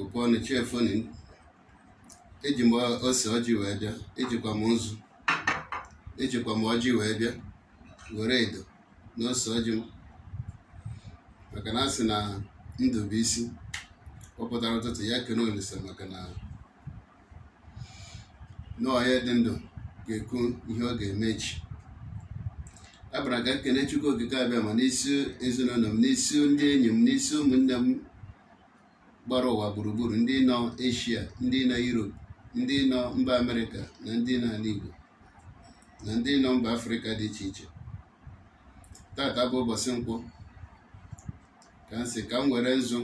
okpọnụ chiefoni eji m ose ọjị wee bịa ejikwa m nzu ejikwa m ọjị wee bịa were edo na ose ọjị m maka na asị na ndụ bụ isi kpọpụtara ụtụtụ ya kene Olisa maka na n'ọhịa dị ndụ ga-ekwu ihe ọ ga-eme echi abara ka nkene e Chukwu okike abịa ma n'isi ezinụlọ m n'isi ndị enyi m n'isi ụmụnne m gbara ụwa gburugburu ndị nọ eshia ndị nọ yurop ndị nọ mba amerịka na ndị nọ ala na ndị nọ mba afrịka dị iche iche tata bụ ụbọchị nkwụ ka m sị ka m were nzu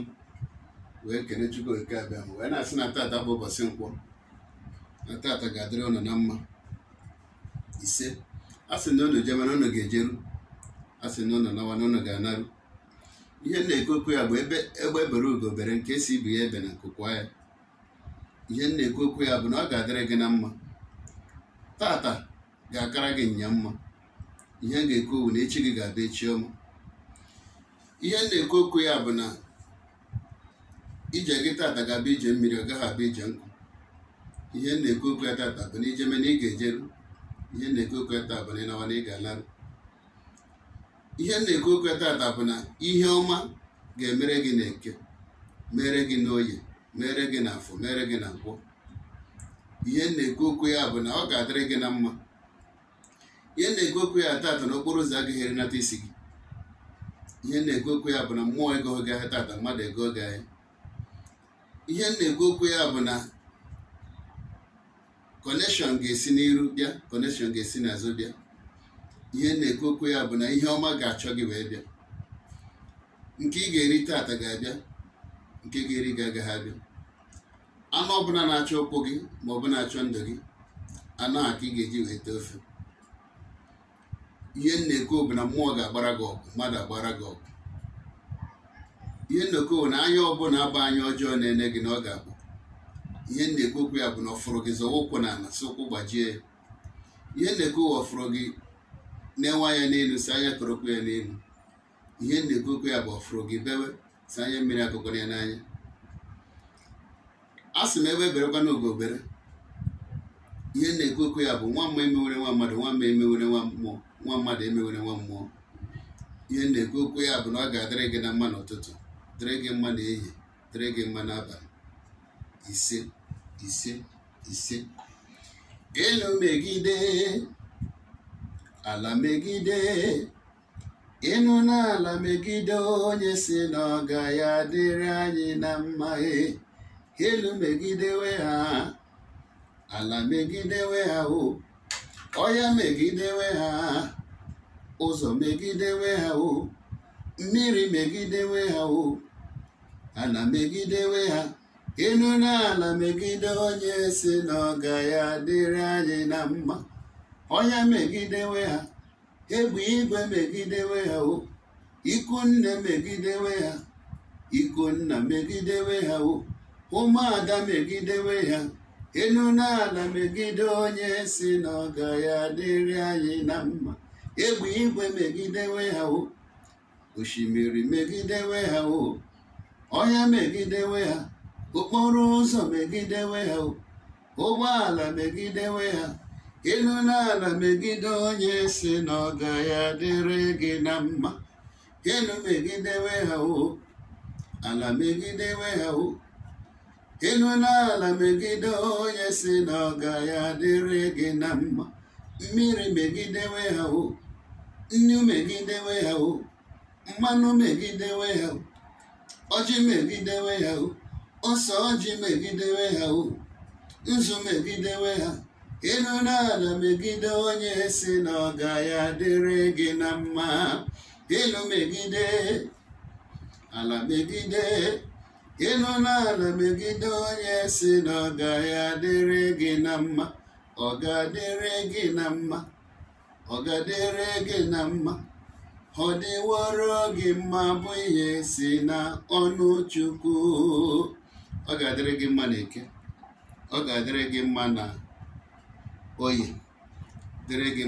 wee kene chukwu oke abịa m wee na-asị na tata bụ ụbọchị nkwụ na tata ga-adịrị ụnụ na mma ise a sị na ụnụ jemana ụnụ ga-ejeru a sị na ụnụ nawa na ụnụ ga-anarụ ihe na-ekwekwe ya bụ ebe egbe e bere ugo nke si ibu ya ebe na nkụkwa ya ihe na-ekwekwe ya bụ na ọ ga-adịrị gị na mma tata ga-akara gị nya mma ihe ga-ekwu na echi gị ga abịa echi ọma ihe na-ekwu okwu ya bụ na ije gị tata ga-abụ ije mmiri ọ gaghị abụ ije nkụ ihe na-ekwu okwu ya tata bụ na ijeme na ị ga-ejeru ihe na-ekwu okwu ya tata bụ na ịnawa na ị ga-alarụ ihe na-ekwu okwu tata bụ na ihe ọma ga-emere gị n'eke mere gị n'oye mere gị n'afọ mere gị na nkwọ ihe na-ekwu okwu ya bụ na ọ ga-adịrị gị na mma ihe na-ekwu okwu ya tata n'okporo ụzọ agaghị erinata isi gị ihe na-ekwu okwu ya bụ na mmụọ ego gị ahịa tata mmadụ ego gị ahịa ihe na-ekwu okwu ya bụ na kọnekshọn ga-esi n'iru bịa kọnekshọn ga-esi n'azụ bịa ihe na okwu ya bụ na ihe ọma ga-achọ gị wee bịa nke ị ga-eri taata ga-abịa nke ga-eri gị agaghị abịa anụ ọbụla na-achọ ụkwụ gị ma ọ bụ na-achọ ndụ gị anụ a ka ị ga-eji wee tee ofe ihe na-ekwu bụ na mmụọ ga-agbara gị ọgụ mmadụ agbara gị ọgụ ihe na bụ na anya ọbụla agba anya ọjọọ na-ene gị na ọ ga-abụ ihe na-ekwu okwu ya bụ na ọ gị zọwa ụkwụ na ala si ụkwụ gbajie ya ihe na-ekwu ọfụrụ gị na-enwe anya n'elu si anya korokwu ya n'elu ihe na-ekokwu ya bụ ọfụrụ gị bewe si anya mmiri akụkọrọ ya n'anya a sị m ebe berekwa obere ihe na-ekokwu ya bụ nwa mma emewere nwa mmadụ nwa mma emewere nwa mmụọ nwa mmadụ emewere nwa mmụọ ihe na-ekokwu ya bụ na ọ ga-adịrị gị na mma n'ụtụtụ dịrị gị mma n'ehihie dịrị gị mma n'abalị ise ise ise megide ala megide ịnụ n'ala megide onye si na ọga ya dịrị anyị na mma e, elu megidewe ha ala megidewe ha o ọhịa megidewe ha ụzọ megidewe ha o mmiri megidewe ha o ala megidewe ha ịnụ n'ala megide onye si na ọga ya dịrị anyị na mma ọnya megidewe ha egbe igwe megidewe ha o ikunne megidewe ha ikonna megidewe ha o ụmụada megidewe ha Elu n'ala megide onye si na ya dịrị anyị na mma egbe igwe megidewe ha o osimiri megidewe ha o ọhịa megidewe ha okporo ụzọ megidewe ha o ụgbọala megidewe ha ịnụla ala megide onye si na ọ gaghị adịrị gị na mma ịnụ megidewe ha o ala megidewe ha o ịnụla ala megide onye si na ọ gaghị adịrị gị na mma mmiri megidewe ha o nnu megidewe ha o mmanụ megidewe ha o ọjị megidewe ha o ọsọ ọjị megidewe ha o nzu megidewe ha ịnụ n'ala megide onye si na ọ gaghị adịrị gị na mma ịnụ megide ala megide ịnụ n'ala megide onye si na ọ gaghị adịrị gị na mma ọ ga-adịrị gị na mma ọ ga-adịrị gị na mma ọ dịworo gị mma bụ ihe si na ọnụ Chukwu ọ ga-adịrị gị mma na eke ọ ga-adịrị gị mma na oye dere ge